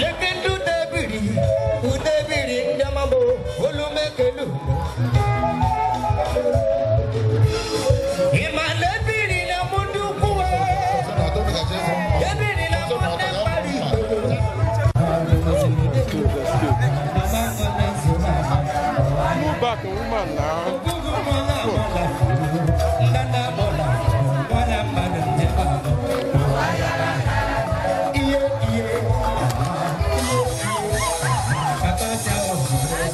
lekendu tebiri utebiri ndamabo olumekelu imalebiri na mundukuwe ebiri na mundepari Move back, woman now.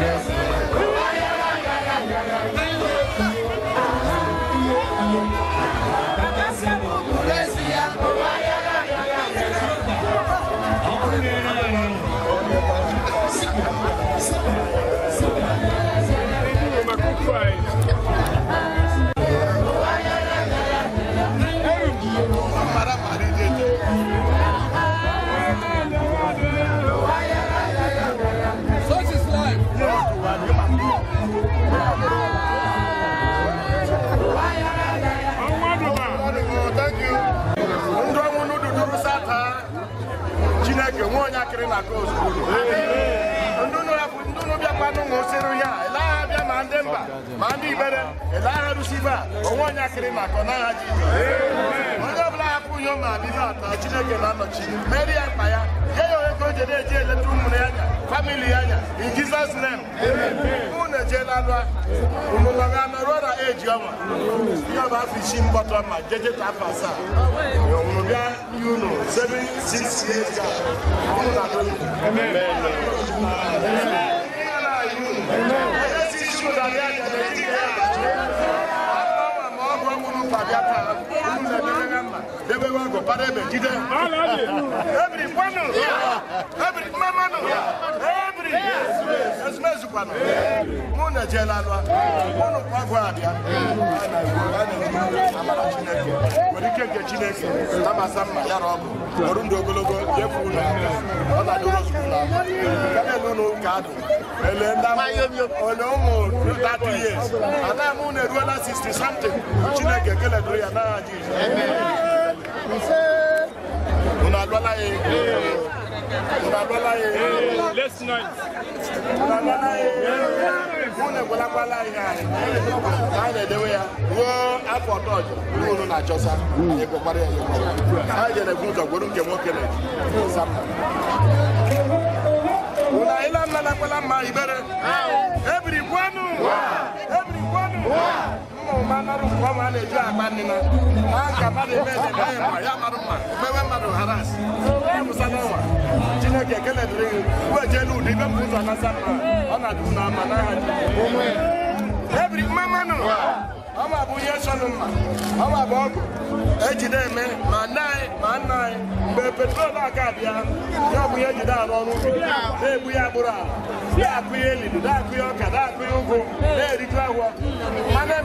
Yes. ntakịrị maka ozugbo ndị unu bịakwanụ nwụsịrị ihe a ele agha bịa ma ndị mba ma ndị ibere ele agha rụsi ibe a onwe onye maka ọ naghị ji onye ọbụla hapụ ihe ma ata chineke na-anọchi meri ya mkpa ya nye ya onye ka o jere eje eleta ụmụ ya anya famili ya anya in na ruo na eji ọnwa ihe ọba ma Amen. Amen. Amen. Amen. Amen. Amen. Amen. Amen. Amen. ezukwana mụ na ejela alụa ụnụ abịa amara chineke ike nke chineke mma ya ọrụ ogologo ụlọ ọ na-adụrụ ozugbo ụlọ adụ ele ụmụ ana m eruola 60 something chineke ya n'aha unu next night. unu egwelakwala na anyị anyị na ya ruo afọ dọji na-achọsa ya anyị jere ụzọ gwere nke nwoke na ịla anyịla nna nakwala mma ibere ebiri gwanụ ebiri gwanụ manaro kwa na-eju akpa ya mma. Mewe haras. emusananwa chineke kenedịrị wee ejelu ụdị ibe mbụ ụzọ na ọ na-adịbu na ama ebiri mmanụ ọma bụ onye sọnụ mma ọma bụ ọgụ ejide eme ma nne anyị ma nna anyị mgbe petrol aka bịa, ya ọ bụ ihe ejide arụ ọrụ ubi na-egbu ya agbụrụ ala na-akụ ihe na ọka na-akụ ihe ụgụ na-eriju